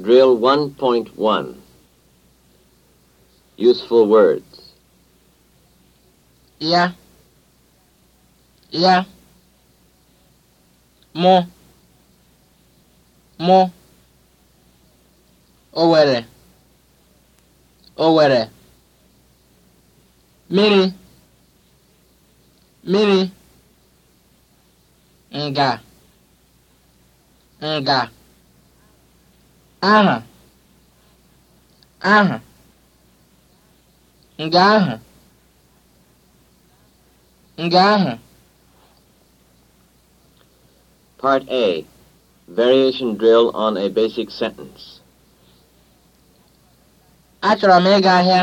Drill 1.1 Useful words. Ya. Ya. Mụ. Mụ. Owere. Owere. mini Mmiri. Nga. Nga. aha aha nga ahụ nga ahụ Part A Variation drill on a basic sentence. Achọrọ m ịga ahịa.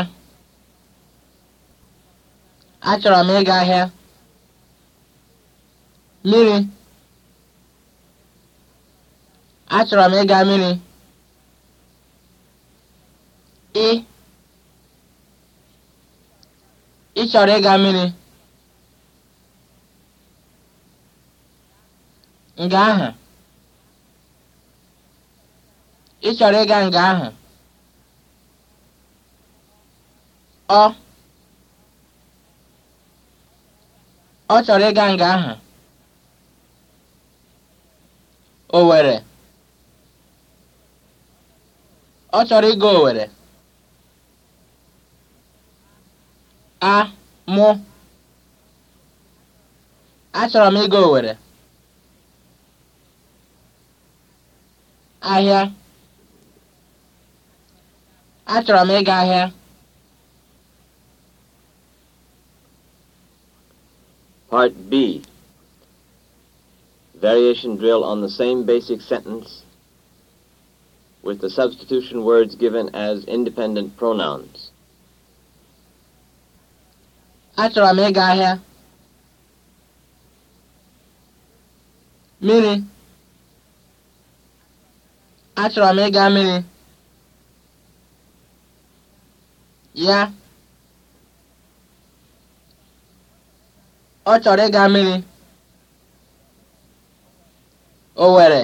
Achọrọ m ịga ahịa. Mmiri. Achọrọ m ịga mmiri. ị chọrọ ịga mmiri nga ahụ ị chọrọ ịga nga ahụ ọ ọ chọrọ ịga nga ahụ Owere ọ chọrọ ịga Owere a mụ achọrọ m ịga Owerri ahịa achọrọ m ịga ahịa Part B Variation drill on the same basic sentence with the substitution words given as independent pronouns. Achọrọ m ịga ahịa. Mmiri. Achọrọ m ịga mmiri. Ya. Ọ chọrọ ịga mmiri. Owere.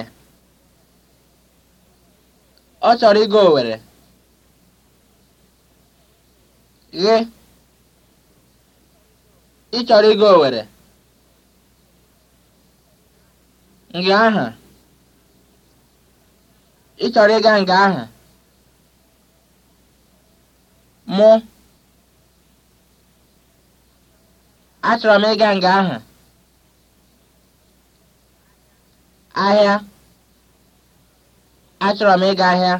Ọ chọrọ ịga Owere. Ghe. ị chọrọ ịga Owere nga aha ị chọrọ ịga nga aha mụ achọrọ m ịga nga aha ahịa achọrọ m ịga ahịa